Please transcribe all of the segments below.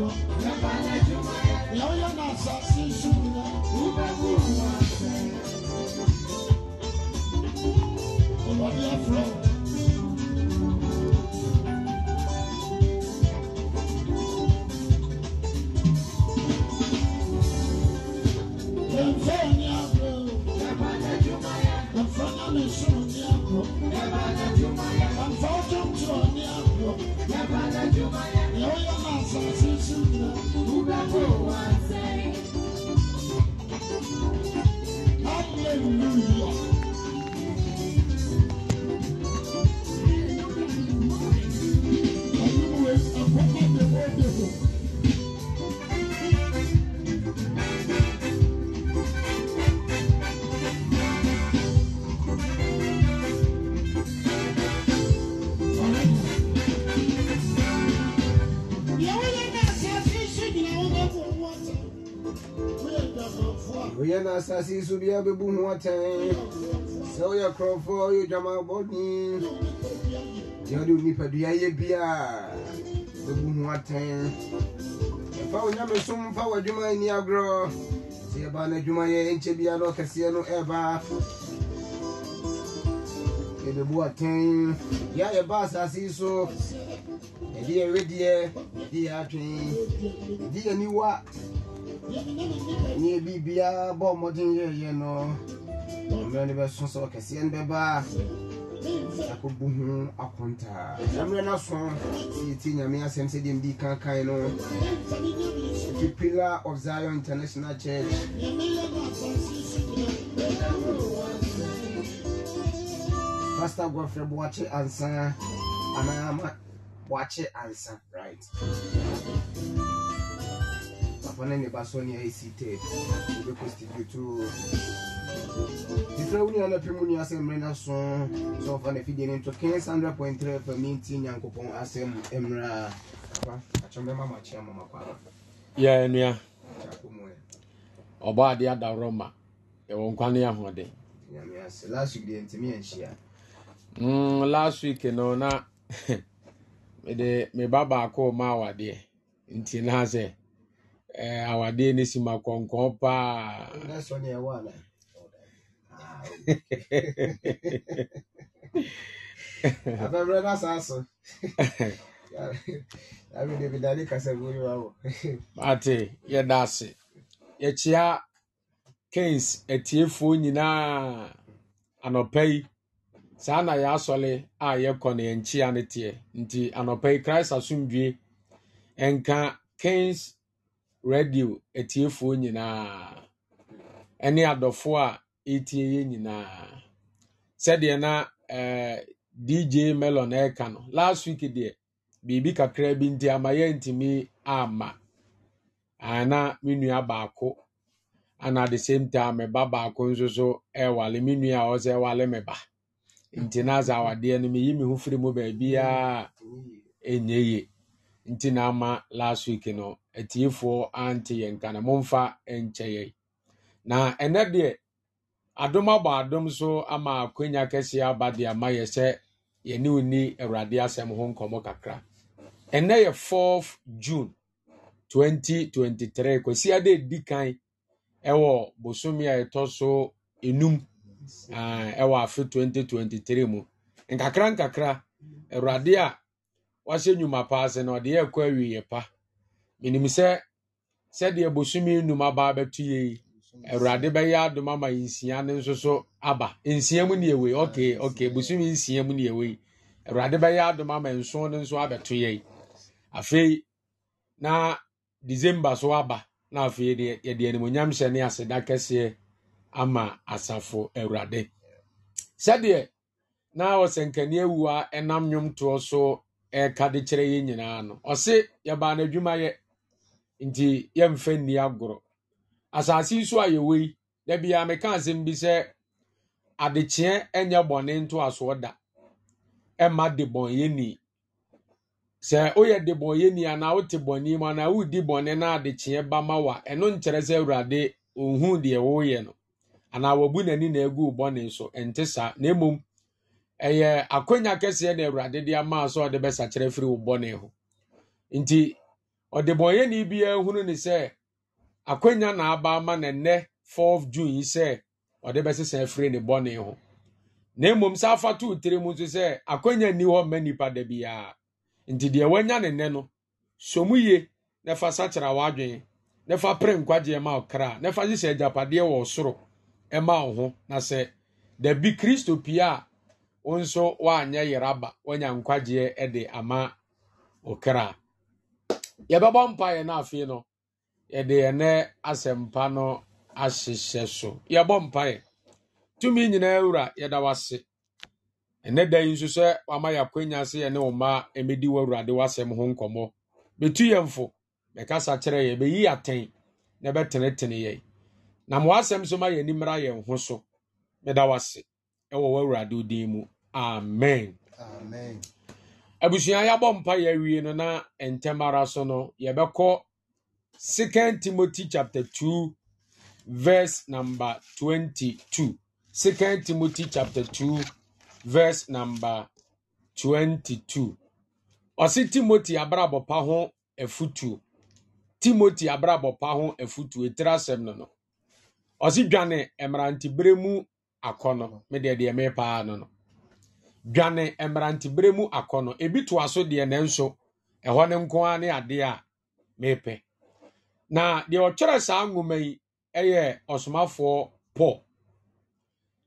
dodo ɛfa n'adwuma na asase so bia bɛbu ho atɛn sɛ woyɛ korɔfoɔ yɛ odwamabɔne deɛ wode onipadua yɛ bia bɛbu ho atɛn ɛfa wo nyame som fa w'adwuma ani agorɔ sɛ yɛba no adwumayɛ nkyɛ bia na ɔkɛseɛ no ɛba yɛbɛbu atɛn yɛ yɛba asase so yɛde yɛwedeɛ yɛde yɛ atwen yɛde yɛniwa ɛnyɛ biribiaa bɔ mmɔden yɛyɛ no mmerɛ no bɛso sɛ ɔkɛseɛ no bɛbaa akɔbu ho akontaa mmerɛ no aso sɛ yɛtie nyame asɛm sɛdeɛ mdi kankan no the pillar of zion international church pastor godfrey boakye ansa anaa boakye ansa right wɔne ne ba so ne asi ted wobɛkɔstitutu titira wo nuana pɛ mu nua asɛm mmerɛ no so sɛ ɔfa no afidie no nto kens 100.3 fa menti nyankopɔn asɛm mmerɛ yɛ nua ɔbɔ ade adaworɔ ma ɛwɔ nkwa ne ahoɔden last week deɛ ntumi anhyia mm last week no na mede me ba baako ma awadeɛ nti na sɛ Eh, awadeɛ no si ma kɔnkɔn paa abɛbrɛ ah, no ate yɛda ase yɛkyea kens atiefoɔ nyinaa anɔpa yi saa na yɛasɔle a yɛkɔ no yɛnkyea no teɛ nti anɔpa yi christ asomdwe ɛnka kens radio atiefoɔ nyinaa ne adɔfoɔ a ɛretie yɛn nyinaa sɛdeɛ na ɛɛ eh, dj melon ɛreka no last week deɛ biribi kakra bi nti ama yɛntumi amma ana ah, me nua baako ana the same time me ba baako nso so ɛwale me nua a ɔsɛ ɛwale me ba nti na asɛ awadeɛ no meyi me ho firi mu baabiara mm. ɛnyɛ yie nti na ama last week no atiefoɔ ante yɛn nka na momfa nkyɛ yɛn na ɛnɛ deɛ adom abɔ adom so ama akwanya kɛseɛ aba de ama yɛ sɛ yɛne onni awurade asɛm ho nkɔmmɔ kakra ɛnɛ yɛ 4 june 2023 kwasi ade di kan ɛwɔ bosome a ɛtɔ so enum ɛwɔ afe 2023 mu nkakra nkakra awurade a wahyɛ nnwuma paa sɛ na ɔde yɛkɔ yɛ pa menim sɛ sɛdeɛ bosome nnum aba abɛto yɛ yi awurade bɛyɛ adom ama nsia no nso so aba nsia mu neɛ wei ok ok bosome nsia mu neɛ wei awurade bɛyɛ adom ama nson no nso abɛto yɛ yi afei na december so aba na afei yɛde animonyam hyɛ ne aseda kɛseɛ ama asafo awurade sɛdeɛ na ɔsɛnkaneɛ awua ɛnam nnwomtoɔ so ɛka de kyerɛ yɛn nyinaa no ɔse yɛbaa n'adwumayɛ nti yɛmfa nni agorɔ asase nso a yɛwɔ yi da biara meka asɛm bi sɛ adekyeɛ nyɛ bɔne ntoasoɔ da ɛma de bɔnyɛni sɛ woyɛ de bɔnyɛni anaa wote bɔne mu anaa woredi bɔne na adekyeɛ ba ma wa ɛno nkyerɛ sɛ awurade ɔnhu deɛ woyɛ no Ana wabu n'ani na agu bɔne so ɛnte saa na mmom ɛyɛ akwanya kɛseɛ na awurade de ama sɛ ɔde bɛsakyerɛ firi wo bɔne ho nti ɔdebɔnyɛni biara hunu ne sɛ akwanya na aba ama na nne 4 june ise ọ ɔde bɛsesa afiri ne na mmom saa afa tiri nso nti deɛ wanya no somu na fa sakyera w'adwene na pere nkwagye ma ɔkra na soro ma ọhụ. na kristo ama yɛbɛbɔ mpaeɛ no afei no yɛde yɛnɛ asɛmpa no ahyehyɛ so yɛbɔ mpaeɛ tumi nyinaa wura yɛda wase ɛnɛ da yi nso sɛ wama yɛakwanya sɛ yɛne wo mmaa ɛmɛdi w'awurade w'asɛm ho nkɔmmɔ bɛtu yɛ fo bɛkasa kyerɛ yɛ bɛyi atɛn na bɛtenetene yɛn na ma w'asɛm so ma yɛni mmra yɛn ho so meda wase ɛwɔ w'awurade din mu amen, amen. abusua yɛabɔ mpa yɛawie no na ntɛm ara so no yɛbɛkɔ 2 timothy 2:22 2 verse number 2 timothy chapter 2 verse number timothy abrabɔ pa ho afotuo timothy abrabɔ pa ho afotuo ɛtiri asɛm no no ɔse dwane mmerantebere mu akɔ no medeɛ deɛ mepaa no no dwane mmerantebere mu akɔnɔ ebi toa so deɛ nanso ɛhɔ ne nko ara ne adeɛ a meepɛ na deɛ ɔtwerɛ saa nwoma yi yɛ ɔsomafoɔ pɔ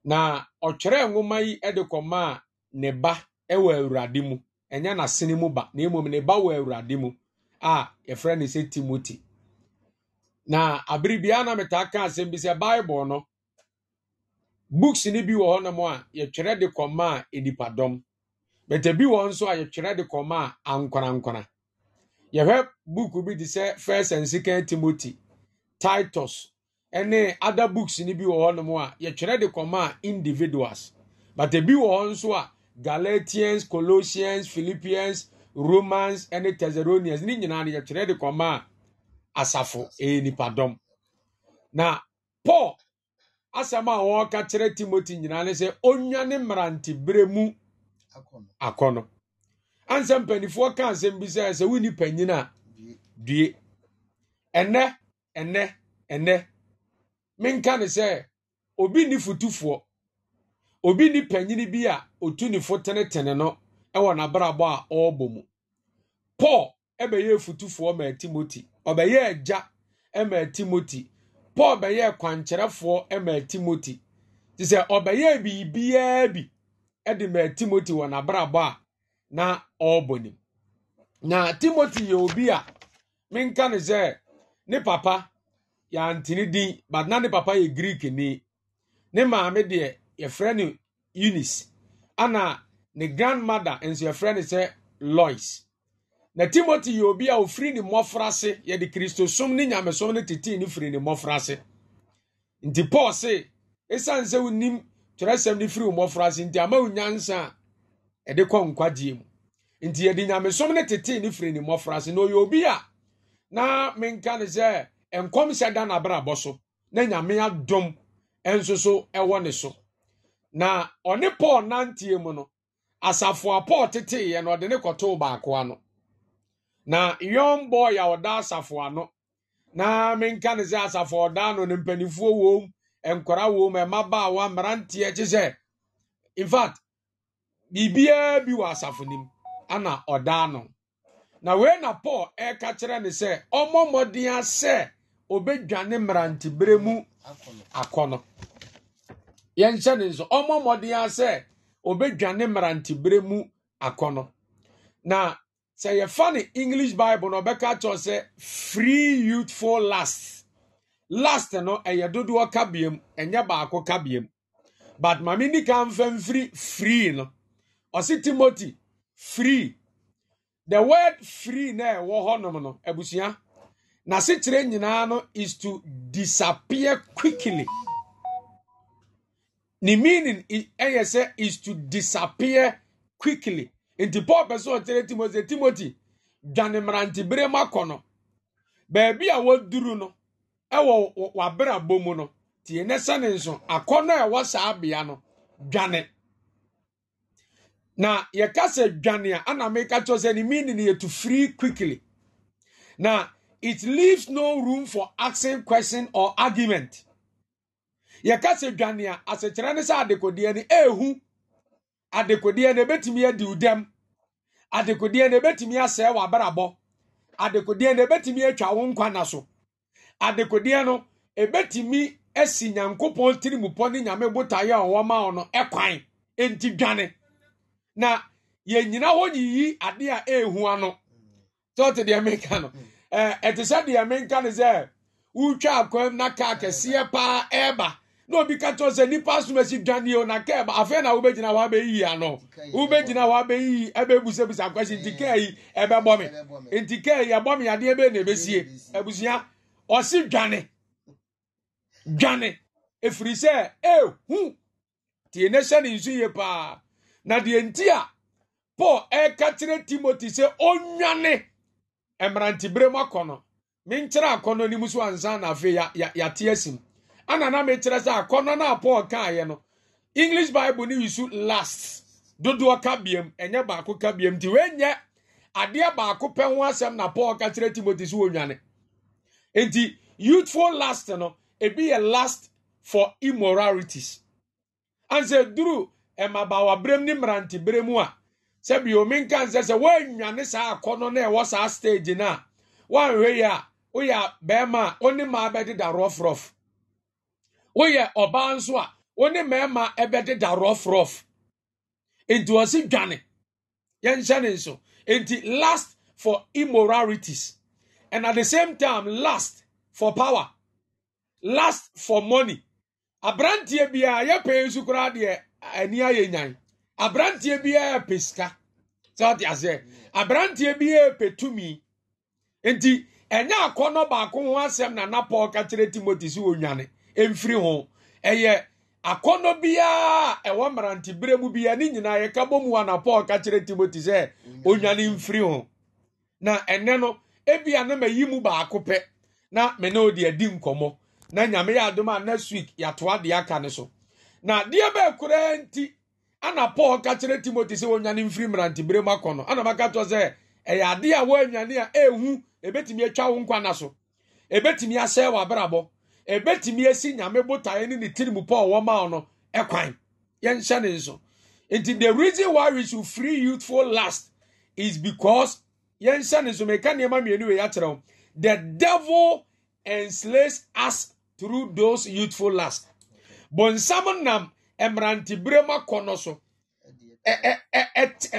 na ɔtwerɛ nwoma yi de a ne ba wɔ awurade mu ɛnyɛ n'asene mu ba na mmom ne ba wɔ awurade mu a yɛfrɛ ne sɛ timoti na abere biara na metaa ka asɛm bi sɛ bible no books no bi wɔ hɔnom a yɛtwerɛ de kɔma a nipadɔm bɛtɛ bi wɔ nso a yɛtwerɛ de kɔma a ankwanankwana yɛhwɛ book bi te sɛ first and second timothy titus ne other books no bi wɔ hɔnom a yɛtwerɛ de kɔma a individuals bɛtɛ bi wɔ hɔ nso a galatians colossians philippians romans ne thessalonians ne nyinaa no yɛtwerɛ de kɔma a asafo ɛyɛ eh, nipadɔm na paul asɛm a wɔka kyerɛ timoti nyinaa ne sɛ ɔnwa ne mmerante berɛ mu akɔ no ansɛ mpanifoɔ ka asɛm bi sɛ sɛ wonni panyin a due ɛnɛ ɛnɛ ɛnɛ menka ne sɛ obi nni fotufoɔ obi nni panyini bi a ɔtu ne fo tenetene no ɛwɔ n'abrabɔ a ɔrebɔ mu paul ɛbɛyɛɛ fotufoɔ maa timoti ɔbɛyɛɛ agya maa timoti paul bɛyɛɛ kwankyerɛfoɔ maa timoti nti sɛ ɔbɛyɛɛ biribiara bi de maa timoti wɔ n'abrabɔ a na ɔrebɔ nim na timoti yɛ obi a menka ne sɛ ne papa yɛantene din but na ne papa yɛ greek ni ne maame deɛ yɛfrɛ no eunice ana ne grandmother nso yɛfrɛ no sɛ lois na timothy yɛ obi a ofiri ne mmɔfra ase yɛde kristosom ne nyamesom no tetee ne firi ne mmɔfra ase nti paul se ɛsiane sɛ wonim twerɛsɛm no firi wo mmɔfra ase nti ama wo nyansa a ɛde kɔ nkwagyeɛ mu nti yɛde nyamesom no tetee ne firi ne mmɔfra ase na ɔyɛ obi a na menka ne sɛ nkɔm hyɛ da n'abrabɔ so na nyame adom nso so ɛwɔ ne so na ɔne paul nanteɛ mu no asafo a paul teteeɛ no ɔde ne kɔtoo baako ano na young boy a ɔda asafo ano na menka ne sɛ asafo ɔda no ne mpanimfoɔ wom nkwara wom mmabaawa mmeranteɛ kye sɛ infact biribiara bi wɔ asafo nim ana ɔda ano na wei na paul ɛka kyerɛ ne sɛ ɔmmɔ mmɔden sɛ ɔbɛdwane mmerantebere mu akɔnɔ yɛnhyɛ ne nso ɔmmɔ mmɔden sɛ ɔbɛdwane mmerantebere mu akɔnɔ na sɛ yɛfa ne english bible na ɔbɛka kyerɛ sɛ free youthful last last no ɛyɛ dodoɔ ka biam ɛnyɛ baako ka biam but maame ni kan fɛn firi free no ɔsi timothy free the word free na ɛwɔ hɔnom no abusua n'asekyerɛ nyinaa no is to disappear quickly ne meaning ɛyɛ sɛ is to disappear quickly. nti paul pɛ sɛ ɔkyerɛ timothy timoti dwane mmerantebere ma kɔ no baabi a waduru no ɛwɔ wabrabɔ mu no tie ne sɛ ne nso akɔnnɔ a ɛwɔ saa bea no dwane na yɛka sɛ dwane a ana meka kyerɛ sɛ ne meaning yɛ free quickly na it leaves no room for asking question or argument yɛka sɛ dwane a asɛkyerɛ ne sɛ adekodeɛ no ɛɛhu eh, adekodeɛ na ebetumi adi udam adekodeɛ na ebetumi asɛe w'abrabɔ adekodeɛ na ebetumi atwa wo nkwa na so adekodeɛ no ebetumi asi nyankopɔn tirimupɔ ne nyame botaeɛ a ɔwɔ ma no ɛkwan enti dwane na yɛnyina hɔ yiyi adeɛ a ehu ano tɔte deɛ menka no hmm. ɛte sɛ deɛ menka no sɛ wotwa akwam na kaa kɛseɛ paa ɛɛba na obi ka kyerɛ sɛ nipa asomasi dwaneɛ o na kɛɛ ba afei na wobɛgyina hɔ abɛyiyi ano wobɛgyina hɔ abɛyiyi ɛbɛbusabusa akwasi nti kɛɛ yi ɛbɛbɔ me nti kɛɛ yi ɛbɔ me adeɛ bɛyɛ na ɛbɛsie abusua ɔsi dwane dwane efiri sɛ ehu tie ne hyɛ ne nsu yie paa na deɛ nti a paul ɛka e kyerɛ timothy sɛ ɔnwane e mmerantibere mu akɔ no menkyerɛ akɔ no anim so ansa na afei yate asim ana na mekyerɛ sɛ akɔnnɔ no a paul kaeɛ no english bible ne yisu last dodoɔ ka biam ɛnyɛ baako ka biam nti wɔnyɛ adeɛ baako pɛ ho asɛm na paul ka kyerɛ timothy so wɔnwane nti youthful last no ebi yɛ last for immoralities ansɛ duru mmabaawaberɛm ne mmeranteberɛ mu a sɛbi omi nka nsɛ sɛ wɔanwane saa akɔnɔ no ɛwɔ saa stage no a wɔanhwɛ yi a woyɛ bɛrima a ɔne maa bɛdeda rɔfrɔf woyɛ ɔbaa nso a wo ne mmarima ɛbɛdeda rɔfrɔf nti wɔsi dwane yɛnhyɛ ne nso nti last for immoralities and at the same time last for power last for money aberanteɛ biara yɛpɛ nsu koraa deɛ ani ayɛ nyan aberanteɛ biara yɛpɛ sika sɛ ɔte aseɛ aberanteɛ biara yɛpɛ tumi nti ɛnyɛ akɔnɔ baako ho asɛm na na paul ka kyerɛ timothy sɛ mfiri ho ɛyɛ akɔnɔ biara ɛwɔ mmerante bere mu biara ne nyinaa yɛka bɔ mu ana paul ka kyerɛ timoti sɛ onyane mfiri ho na ɛnɛ no ebia na mayi mu baako pɛ na me ne odi adi nkɔmmɔ na nyame yɛ adom a next week yɛatoa deɛ aka ne so na deɛ bɛɛ koraa nti ana paul ka kyerɛ timoti sɛ onyane mfiri mmerante bere mu akɔ no ana maka to sɛ ɛyɛ adeɛ a wɔanyane a ɛhu ebetumi atwa wo nkwa na so ebetumi asɛe wɔ abrabɔ ɛbɛtumi asi nyame botaeɛ ne ne tirimu pɔ ɔwɔ ma no ɛkwan yɛnhyɛ ne nso nti the reason why we should free youthful last is because yɛnhyɛ ne nso meka nneɛma mmienu wei akyerɛ wo the devil enslaves us through those youthful lust bonsam nam mmerantebere mu akɔnnɔ so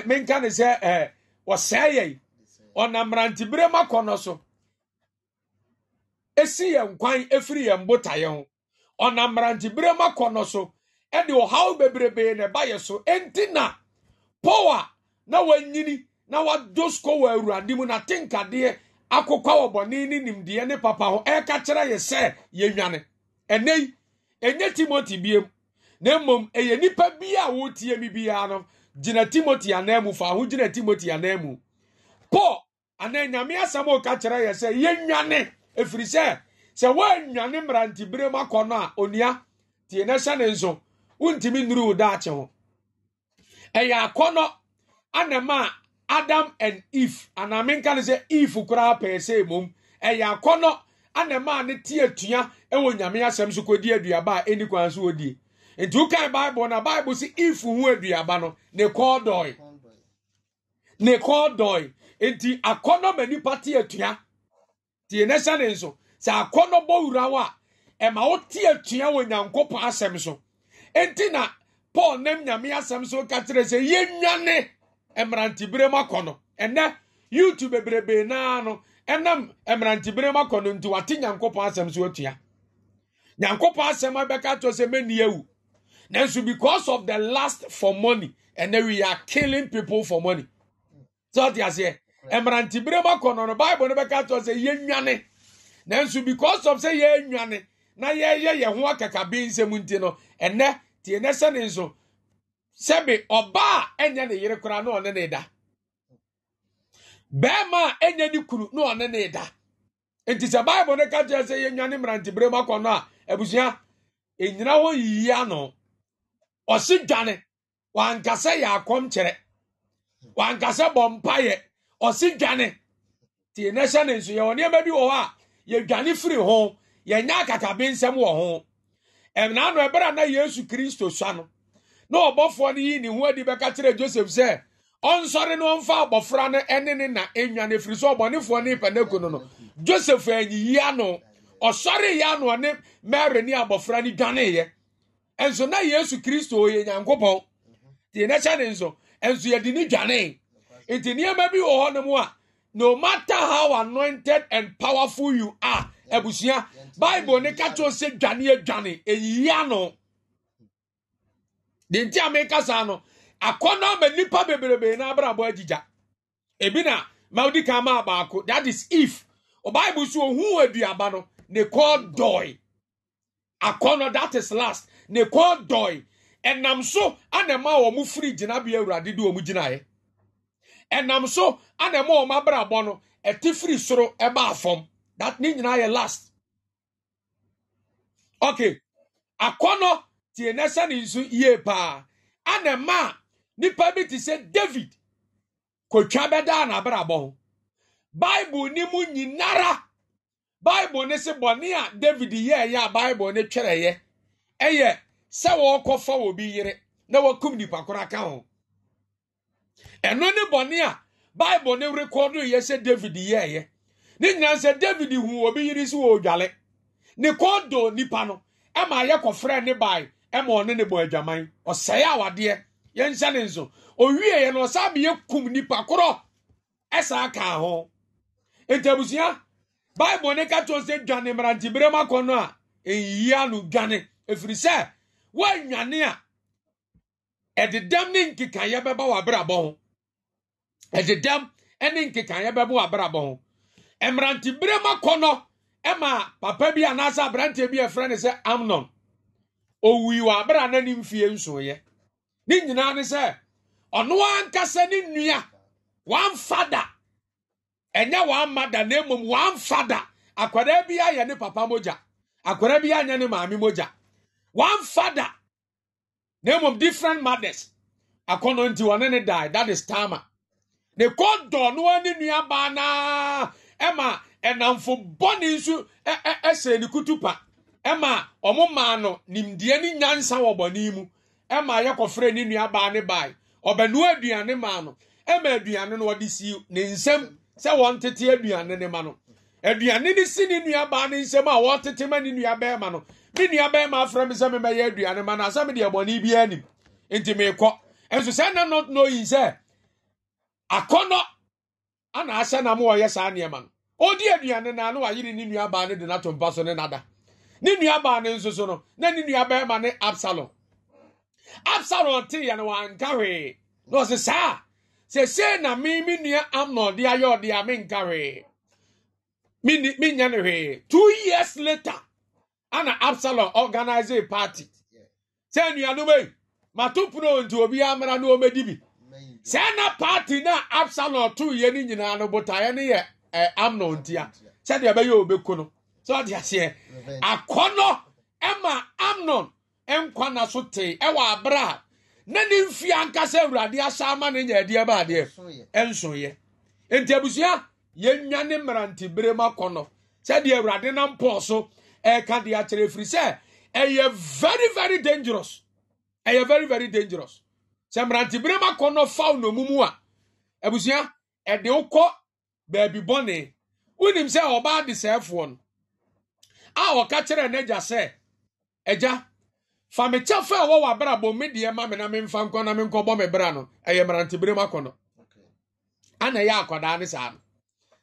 menka ne sɛ wɔsɛe yɛi ɔnam mmerantebere mu akɔnnɔ so esi yɛn kwan efiri yɛn botaeɛ ho ɔnam mmeranteberem akɔnɔ so ɛde ɔhaw bebrebee na ɛba yɛ so enti na paul a na wanyini na wadɔ sukɔ wɔ awurade mu n'atenkadeɛ akokɔ wɔ bɔne ne nimdeɛ ne papa ho ɛreka kyerɛ yɛ sɛ yɛnwane ɛnɛ yi ɛnyɛ timoti biem na mmom ɛyɛ nnipa bi a wɔretie mi biara no gyina timoti anan mu fa ho gyina timoti anan mu paul anan nyame asɛm a ɔka kyerɛ yɛ sɛ yɛnwane efiri sɛ sɛ woannwane mmerantebere mu akɔ no a onua tie na hyɛ ne nso wontumi nnuru wo daakye ho ɛyɛ akɔnɔ anama adam and eve anaa menka no sɛ eve koraa pɛɛ sɛ mmom ɛyɛ akɔnɔ anama ne te atua ɛwɔ nyame asɛm so kɔdi aduaba a ɛni kwan so wɔdie nti wokae bible na bible sɛ eve ho aduaba no ne kɔɔ dɔe ne kɔɔ dɔe nti akɔnɔ ma nipa te atua tie ne hyɛ ne nso sɛ akɔnɔ bɔ wura wo a ɛma wo te atua wɔ nyankopɔn asɛm so enti na paul nam nyame asɛm so ka kyerɛ sɛ yɛnwane mmerantebere mu akɔnɔ ɛnɛ youtube bebrebee naa no ɛnam mmerantebere mu akɔnɔ nti wate nyankopɔn asɛm so atua nyankopɔn asɛm abɛka to sɛ mɛni awu nanso because of the last for money ɛnɛ we are killing people for money sɛ ɔte aseɛ mmerantebere mu akɔ no no bible no bɛka to sɛ na nanso because of sɛ yɛnwane na yɛyɛ yɛn ho akakabe nsɛm nti no ɛnɛ tie nɛ sɛ ne nso sɛbe ɔbaa ɛnyɛ ne yere koraa na ɔne ne da bɛrima a ɛnyɛ ne kunu na ɔne ne da nti sɛ bible no ka kyerɛ sɛ yɛnwane mmerantebere mu akɔ no a abusua ɛnyina hɔ yiyia no ɔse dwane wankasɛ yɛ akɔm kyerɛ wankasɛ bɔ mpayɛ ɔsi dwane tie ne hyɛ ne nso yɛwɔ nneɛma bi wɔ hɔ a yɛdwane firi ho yɛnya akatabe nsɛm wɔ ho ɛbɛrɛ na yesu kristo sua no na ɔbɔfoɔ no yi ne ho adi bɛka kyerɛ joseph sɛ ɔnsɔre no abɔfra no ɛne ne na enwane firi so ne no no joseph ano ɔsɔre ano ɔne na yesu kristo yɛ nti nneɛma bi wɔ hɔ nom a no matter how anointed and powerful you are abusua bible ne ka kyerɛ sɛ dwane adwane ɛyia no de nti a meka saa no akɔnnɔ ama nnipa bebrebe na abrabɔ agyigya ebi na ma wodi kan maa baako that is if bible so ohun aduaba no ne kɔɔ dɔe akɔnnɔ that is last ne kɔɔ dɔe ɛnam so ana ma wɔn firi gyinabea awurade de wɔn gyinaeɛ. ɛnam so ana ɛma wɔn abrabɔ no ɛte firi soro ɛba fam that ne nyinaa yɛ last okay akɔnɔ tie nɛsɛ ne nsu yie paa ana ɛma a nipa bi te sɛ david kotwa bɛdaa n'abrabɔ ho bible ne mu nyinara bible ne se bɔne a david yɛɛyɛ a bible ne twerɛyɛ ɛyɛ sɛ wɔrekɔfa wɔ bi yere na wɔakum nipa koro aka ho ɛno ne bɔne a bible ne rekɔdo yɛ sɛ david yɛɛyɛ ne nyinaa sɛ david hu obi yiri so wɔ odwale ne kɔdo nipa no ɛma yɛ kɔfrɛ ne bae ɛma ɔne ne bɔ adwaman ɔsɛe awadeɛ yɛnhyɛ ne nso owieɛ no ɔsan bɛ yɛkum nipa korɔ ɛsaa kaa ho ntabusua bible ne ka kyerɛ sɛ dwane mmeranteberɛ mu akɔ no a ɛnyia no dwane ɛfiri sɛ woanwane a ɛdedam ne nkekayɛ bɛba w'abrabɔ ho ɛdedam ne nkekaeɛ bɛbo abrabɔ ho mmerantebere mu akɔnnɔ ma papa bi anaasɛ aberanteɛ bi ɛfrɛ no sɛ amnon owui wɔ abera a n'anim fie nsoeɛ ne nyinaa ne sɛ ɔno ankasa ne nnua wamfa da ɛnyɛ wamma da na mmom wamfa da akwadaa bi ayɛ ne papa mogya akwadaa bi anyɛ ne maame mogya wamfa da na mmom different mothers akɔnɔ nti wɔne ne die that is tama ne kɔdɔ no ani nuabaa naa ɛma ɛnamfo bɔne nso ɛhyɛ ne kutu pa ɛma ɔmo maa no nimdeɛ ne nyansa wɔ bɔne mu ɛma yɛkɔfrɛ ne nuabaa ne bae ɔbɛnoa aduane maa no ɛma aduane no ɔde si ne nsam sɛ wɔn tete aduane ne ma no aduane ne si ne nuabaa ne nsam a wɔtete ma ne nuabɛɛma no me nuabɛɛma afrɛ me sɛ memɛyɛ aduane ma no asɛ mede ɛbɔne biara nim nti meekɔ ɛnso sɛ na not knowing sɛ akɔnɔ ana ahyɛ na mo ɔyɛ saa nneɛma no ɔdi aduane na ano wayere ne nuabaa no de no ato mpa so ne nada ne nuabaa no nso so no na ne nuabɛrima ne absalom absalom te yɛ no wanka hwee na ɔse saa sɛsee na me me nua amnon de ayɛ ɔde a menka hwee menyɛ no hwee two years later ana absalom organize a party sɛ nnuanom ei mato pono nti obi amara na ɔmɛdi bi sɛɛ na party na absalom too yɛ no nyinaa eh, no botaeɛ no yɛ amnon ntia sɛdeɛ ɛbɛyɛ ɔbɛku no sɛ ɔde aseɛ akɔnnɔ ɛma amnon nkwa na so tee ɛwɔ abrɛ a na ne mfie ankasa awurade ahyɛ ama no nya adeɛ ba adeɛ ɛnsoyɛ nti abusua yɛnwa ne mmerantebere mu akɔnnɔ sɛdeɛ awurade na mpɔɔ so ɛreka de akyerɛ ɛfiri sɛ ɛyɛ very very dangerous ɛyɛ very very dangerous sɛ mmerantebere ma kɔ no fa wo nomumu a abusua ɛde wo kɔ baabi bɔne wonim sɛ ɔbaa de sɛɛfoɔ no a ɔka kyerɛ n'agya sɛ agya fa me kyɛ fa ɛwɔ w'abrabɔ me deɛ ma me na memfa nkɔ na menkɔbɔ me bra no ɛyɛ mmerantebere ma kɔ no ana ɛyɛ akwadaa ne saa no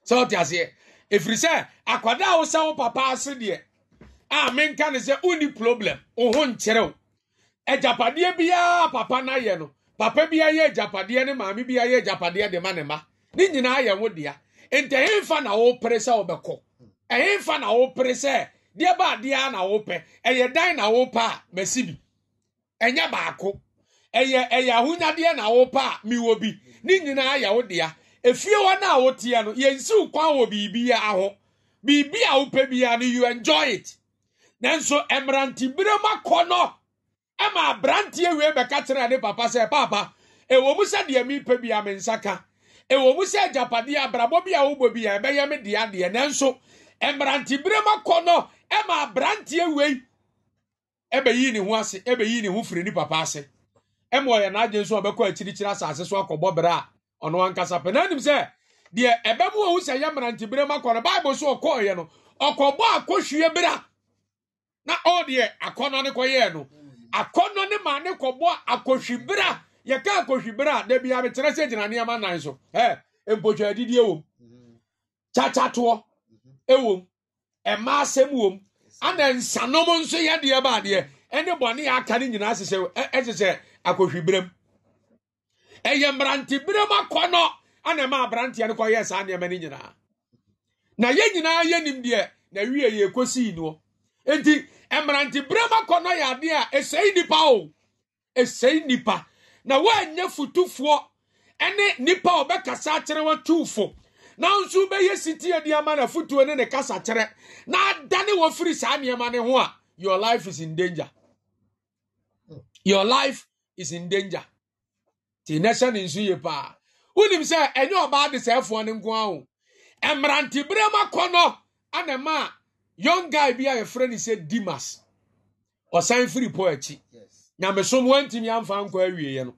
sɛ wote aseɛ ɛfiri sɛ akwadaa wo sɛ wo papa ase deɛ a menka ne sɛ wonni problem wo ho nkyerɛ wo agyapadeɛ biara papa no ayɛ no papa bi ayɛ japadeɛ ne maame bi ayɛ japadeɛ de ma ne ma ne nyinaa yɛ wo dea nti ɛyɛ mfa na wopere sɛ wobɛkɔ ɛyɛ mfa na wopere sɛ deɛ ba adeɛ na wopɛ ɛyɛ dan na wopɛ a masi bi ɛnyɛ baako ɛyɛ ɛyɛ ahonyadeɛ na wopɛ a miwɔ bi ne nyinaa yɛ wo dea efie hɔ no a woteɛ no yɛnsiw kwan wɔ biribi aho biribi a wopɛ ya no you enjoy it nanso mmerantebere mu akɔ no ɛma aberanteɛ wie bɛka kyerɛ ne papa sɛ papa ɛwɔ mu sɛ deɛ mepɛ bia me nsa ka ɛwɔ mu sɛ agyapadeɛ abrabɔ bi a wobɔ bi a ɛbɛyɛ me deɛ adeɛ nanso mmeranteberɛ mu akɔ no ɛma aberanteɛ wei ɛbɛyi ne ho ase ɛbɛyi ne ho firi ne papa ase ɛma ɔyɛ n'agye nso ɔbɛkɔ akyirikyiri asase so akɔbɔ berɛ a ɔno ankasa pɛ na anim sɛ deɛ ɛbɛmu ohu sɛ yɛ mmeranteberɛ mu akɔ no bible so ɔkɔɔyɛ no ɔkɔbɔ akɔhwie berɛ na ɔdeɛ akɔnɔ ne kɔyɛɛ no akɔnɔ ne maa ne kɔbɔ akɔhwibera yɛka akɔhwibera a dabi abetena sɛ gyina nneɛma nan so ɛ mpotwa adidi ewom mhm. kyakyatoɔ ewom mhm. ɛma asɛm wom ana nsanom nso yɛ deɛ ba adeɛ ɛne bɔne yɛ aka ne nyinaa hyehyɛ ɛhyehyɛ akɔhwibera mu ɛyɛ mmerantebere mu akɔnɔ ana ɛma aberanteɛ no kɔyɛ saa nneɛma no nyinaa na yɛ nyinaa yɛ nim deɛ na wie yɛ kɔsii noɔ nti mmeranteberɛm no yɛ adeɛ a ɛsɛe nipa. o ɛsɛe nnipa na woanyɛ futufoɔ ne nnipa a ɔbɛkasa akyerɛ watuufo nanso bɛyɛ sitie de ama no afotuo ne ne kasakyerɛ na adane wɔ firi saa nneɛma ne ho a your life is in danger your life is in danger nti nɛhyɛ ne nso yie paa wonim sɛ ɛnyɛ ɔbaa de sɛɛfoɔ ne nko a o mmeranteberɛm akɔnɔ anama a young guy bi a yɛfrɛ no sɛ dimas ɔsan firi paul akyi nyamesom wantumi amfa nkɔ awieeɛ no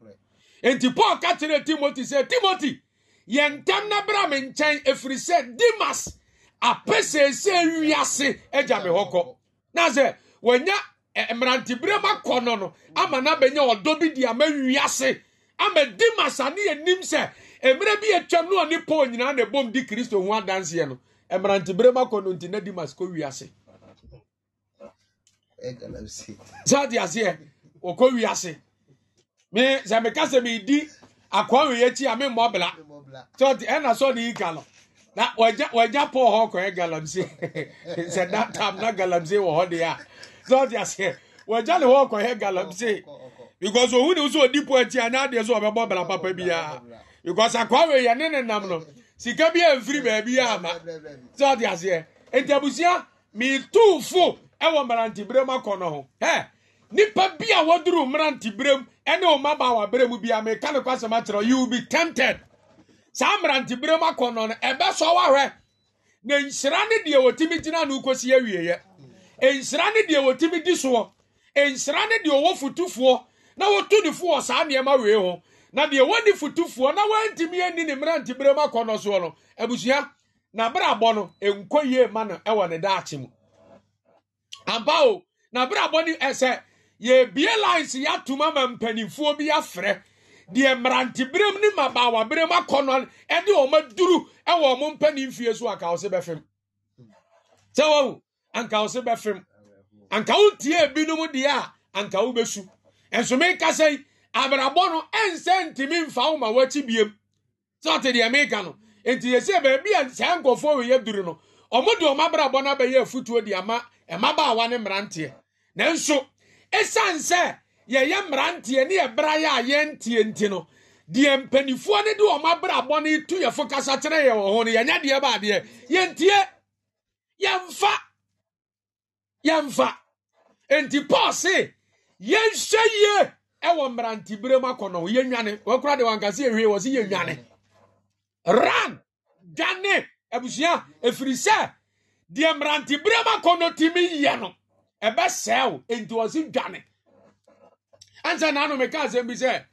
enti paul ka kyerɛ timothy sɛ timothy yɛ ntɛm na bra me nkyɛn ɛfiri sɛ dimas apɛ seesɛ wiase agya me hɔ kɔ na sɛ wanya mmeranteberɛ ma kɔ no no ama no abɛnya ɔdɔ bi de ama wiase ama dimas ane yɛnim sɛ mmerɛ bi yɛtwam no ɔne paul nyinaa na ɛbom di kristo ho adanseɛ no mmerantebere mu akɔ no nti na dimas kɔ wiase saa de aseɛ wɔkɔ wiase me sɛ meka sɛ meedi akoa wei akyi a memmɔ bla sɛ ɛna sɛ ɔde yi ka na wagya paul hɔ kɔɛ galamsey sɛ that time na galamsey wɔ hɔ deɛ a sɛ ɔte aseɛ wagya ne hɔ kɔɛ galamsey because ohun ni nso odi po akyi a na adeɛ so ɔbɛbɔ bla papa biara because akoa wei ne ne nam no sika bi amfiri baabi ama sɛ ɔde aseɛ nti abusua metuufo ɛwɔ mmeranteberɛ mu akɔ no ho ɛ nipa bi a wɔduru mmeranteberɛ mu ɛne wo mmabaawa berɛ mu bia meka ne kwasɛm akyerɛ you will be tempted saa mmeranteberɛ mu akɔ no no ɛbɛsɔ wahwɛ na nhyira ne deɛ wɔtumi gyina no kɔsi awieɛ nhyira ne deɛ wɔtumi di soɔ nhyira ne deɛ ɔwɔ fotufoɔ na wɔtu ne fo wɔ saa nneɛma wei ho na deɛ wɔni fotufoɔ na wɔntumi ani ne mmeranteberɛ mu akɔ no soɔ no abusua n'abrabɔ no nkɔ yie ma no wɔ ne daakye mu ampa o n'abrabɔ no ɛsɛ yɛbie lines yɛatom ama mpanimfoɔ bi afrɛ deɛ mmeranteberɛ mu ne mmabaawaberɛ mu akɔ no ɛde wɔn aduru wɔ wɔn mpanimfie so anka wɔsɛ bɛfem sɛ wɔn anka wɔsɛ bɛfem anka wɔn tie ebinom deɛ a anka wɔn bɛsu nsome kasa yi. abrabɔ no ɛnsɛ ntumi mfa wo ma wɔakyi biem sɛ ɔte deɛ meka no nti yɛsie baabi a saa nkɔfoɔ weyɛ duru no ɔmo de ɔmo abrabɔ no abɛyɛ afutuo de ama mmabaawa ne mmeranteɛ nanso ɛsiane sɛ yɛyɛ mmeranteɛ ne yɛbra yɛ a yɛntie nti no deɛ mpanimfoɔ no de ɔmo abrabɔ no tu yɛfo kasa kyerɛ yɛ wɔ ho no yɛnyɛ deɛ baadeɛ yɛntie yɛmfa yɛmfa nti paul se yɛnhwɛ yie ɛwɔ mmerantebere mu akɔnɔ yɛnwane wɔkora de wankase ɛhwie wɔ se yɛnwane ran dwane abusua ɛfiri sɛ deɛ mmerantebere mu akɔnɔ tumi yɛ no ɛbɛsɛe dwane ansa bi sɛ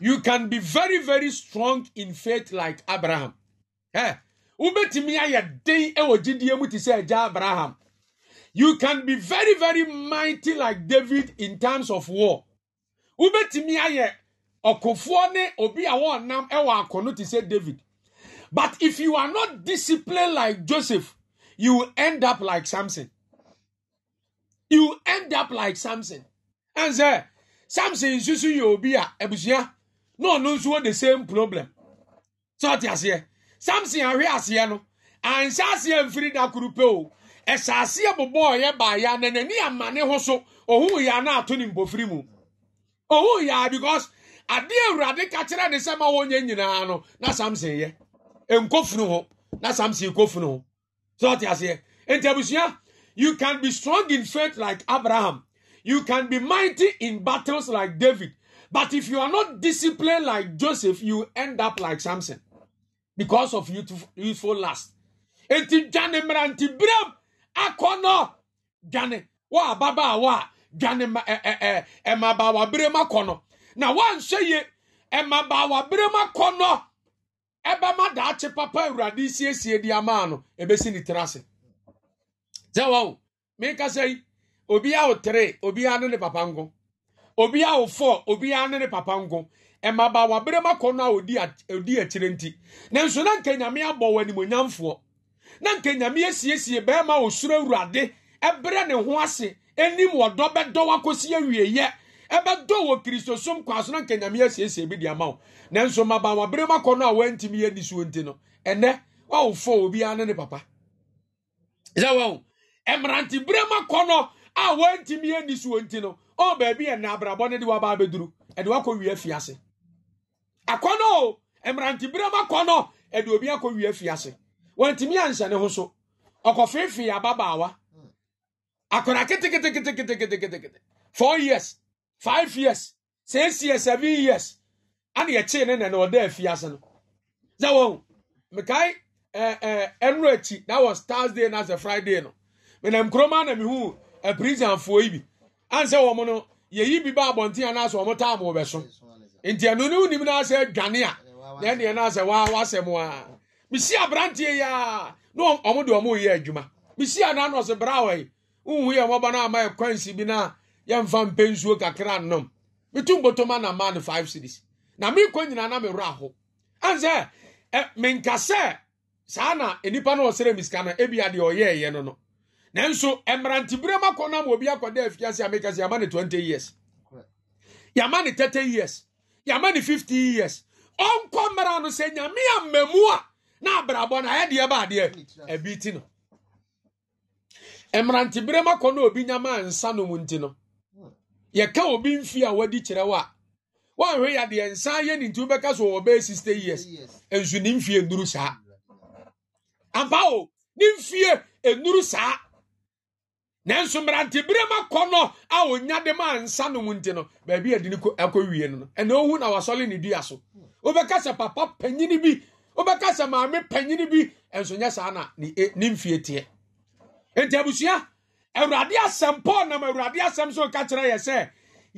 you can be very very strong in faith like abraham ɛ wobɛtumi ayɛ den ɛwɔ gyidie mu te sɛ agya abraham you can be very very mighty like david in terms of war wobɛtumi ayɛ ɔkofoɔ ne obi a wɔnam ɛwɔ akɔno te sɛ david but if you are not disciplined like joseph you will end up like samson you will end up like samson ɛn sɛ samson nsusu yɛ obi a abusua na ɔno nso wɔ the same problem sɛ ɔte aseɛ samson ahwe aseɛ no anhyɛ aseɛ mfiri da koro pe o ɛhyɛ aseɛ bobɔ ɔyɛ baaya na n'ani ama ne ho so ohun yɛ ana ato ne mbɔfiri mu. oh yeah because ade awurade ka kyerɛ ne sɛ ma wɔnyɛ nyinaa no na samson yɛ nkofunu ho na samson kofunu ho so ɔte aseɛ nti abusua you can be strong in faith like abraham you can be mighty in battles like david but if you are not disciplined like joseph you end up like samson because of youthful, youthful lust nti dwane mmeranteberɛm akɔ no dwane wɔ ababaawa a dwane mmabaawaberɛ mu akɔ no na woanhwɛ ye mmabaawaberɛ mu akɔ no ɛbɛma daakye papa awurade siesie di ama no ebesi ne tiri ase sɛ wa o meka sɛ yi obiara wo tere obiara ne ne papa nko obiara wo fɔ obiara ne ne papa nko mmabaawaberɛ mu akɔ no a odi akyire nti Na nso na nka nyame abɔ wɔ animonyamfoɔ na nka nyame asiesie bɛrima osuro awurade ɛbrɛ ne ho ase anim wɔdɔ bɛdɔ wakɔsi awieyɛ ɛbɛdɔ wɔ kristosom kɔ aso na nkanyame asiesie bi de ama wo nanso mabanwa bere makɔ no a wantimi yɛ ni suo nti no ɛnɛ wɔwofɔ obiara ne ne papa sɛ wɔn mmerante bere makɔ no a wantimi yɛ ni suo nti no ɔwɔ baabi yɛ na abrabɔ ne de waba abɛduru ɛde wakɔ wie afiase akɔnɔ o mmerante bere makɔ no ɛde obi akɔ wie afiase wantimi anhyɛ ne ho so ɔkɔfeefee ababaawa akwadaa keteketeketeketeketekete four years five years six years seven years ana yɛkyee ne nana ɔda afiase no sɛ wɔn mekae ɛɛ ɛɛ ɛnuro akyi that was thursday na sɛ friday no menam kuroma na mehu apirisanfoɔ yi bi ansɛ wɔn no yɛyi bi ba abɔnten anaasɛ wɔn taa mo bɛso nti ɛnu ne wunim na asɛ dwane a na ɛneɛ na asɛ waa wasɛ mo a bisi aberanteɛ yi a na wɔn de wɔn reyɛ adwuma bisi anaa na ɔsɛ brawa yi wowu ya wɔba no ama ɛkwansi bi no a yɛmfa mpɛ nsuo kakra nnom metu mbotoma na ma no five cities na meekɔ nyinaa na mewerɛ ho ane sɛ eh, menka sɛ saa na nnipa no ɔsrɛ misika no ebia deɛ ɔyɛɛyɛ no no nanso mmeranteberɛ mu akɔ no obi akɔda afiase a meka sɛ yɛama 20 years yɛama ne 30 years yɛama ne 50 years ɔnkɔ mmara no sɛ nyame ammamu a na abrabɔ no ayɛ deɛ baadeɛ abi ti no mmeranteberɛ m akɔ na obi nyama nsa no mu nti no yɛka obi mfi a wadi kyerɛ wo a woanhwɛ yɛ adeɛ nsa yɛ ne nti wobɛka so wɔ bɛyɛ 60 years nso ne mfie nnuru saa ampa o ne mfie nnuru saa nanso mmeranteberɛ m akɔ no a ɔnya de ma nsa no mu nti no baabi adi ne akɔ no no ɛna ohu na wasɔle ne dua so wobɛka sɛ papa panyini bi wobɛka sɛ maame panyini bi ɛnso nyɛ saa na ne mfie teɛ nti abusua awurade asɛm paul nam awurade asɛm so ka kyerɛ yɛ sɛ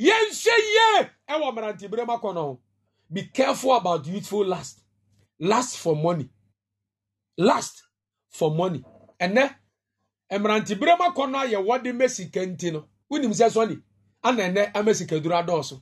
yɛnhyɛ yie ɛwɔ mmeranteberɛ mu akɔnɔ be careful about youthful last last for money last for money ɛnɛ mmeranteberɛ mu akɔnɔ ayɛ wɔde mɛ sika nti no wonim sɛ sɔne ana ɛnɛ ama sika duro adɔɔso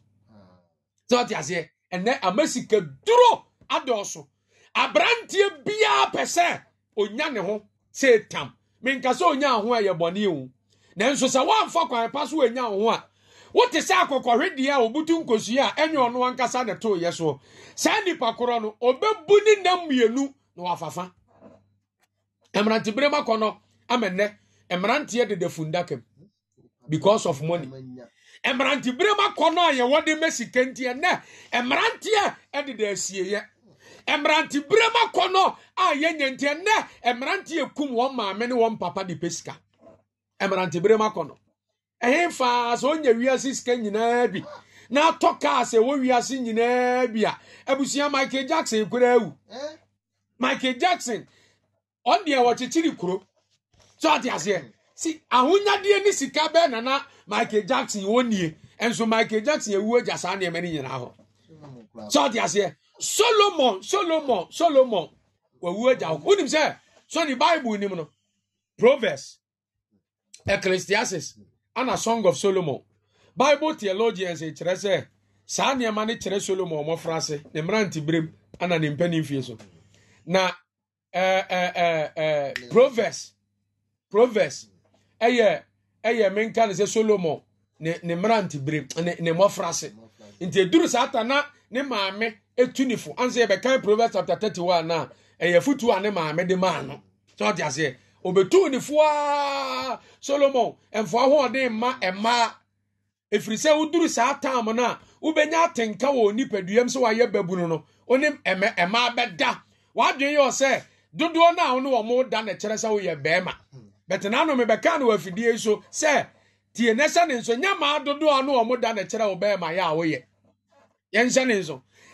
sɛ ɔte aseɛ ɛnɛ ama sika duro adɔɔso aberanteɛ biara pɛ sɛ ɔnya ne ho sɛ tam menkasa onya ho a yɛ bɔne na nanso sɛ woamfa kwan pa so onya wo ho a wote sɛ akɔkɔhwedeɛ a obutu nkosua a ɛnyɛ ɔno ankasa ne toyɛ soɔ saa nnipa korɔ no ɔbɛbu ne nam mmienu na wafafa mmerantebere ma kɔ no amɛnɛ mmeranteɛ deda fundakam because of money mmerantebere ma kɔ no a yɛwɔ de ma sika nti ɛnɛ mmeranteɛ deda asieyɛ mmerante bere kɔ no a yɛnyɛ nti ɛnɛ mmerante ekum wɔn maame ne wɔn papa de pe sika mmerante bere kɔ no ɛhɛn faa sɛ ɔnyɛ wiase sika nyinaa bi na atɔ kaa sɛ ɛwɔ wiase nyinaa bi a abusua michael jackson kura ewu eh? michael jackson ɔdeɛ wɔkyekyere kuro so ate aseɛ si ahonyadeɛ ne sika bɛɛ nana michael jackson wɔn nie nso michael jackson ewu agya saa nneɛma ne nyinaa hɔ so ate aseɛ. solomon solomon solomon wawu agya hɔ wonim sɛ so ne bible nim no proverbs ecclesiastes ana song of solomon bible theologians kyerɛ sɛ saa nneɛma no kyerɛ solomon ɔmɔfra ase ne mmerante berem ana ne mpani mfie so na ɛɛ ɛɛ ɛɛ proverbs proverbs ɛyɛ ɛyɛ menka ne sɛ solomon ne ne mmerante berem ne ne mmɔfra ase nti eduru saa ta na ne maame etu ne fo ansa yɛbɛkan proverbs chapter thirty one na ɛyɛ futuo a ne maame de maa no sɛ ɔte aseɛ obetu ne fo aa solomon mfoa ahoɔden mma mmaa efiri sɛ woduru saa taam no a wobɛnya atenka wɔ nipaduam sɛ wayɛ babunu no onim ɛmɛ mmaa bɛda wadwene yɛ sɛ dodoɔ no a wo ne wɔn da na kyerɛ sɛ woyɛ bɛrima bɛtɛ n'anum bɛka no wɔ afidie so sɛ tie ne sɛ ne nso nyɛ maa dodoɔ a ne wɔn da na kyerɛ wo bɛrima yɛ a woyɛ yɛnhyɛ ne nso.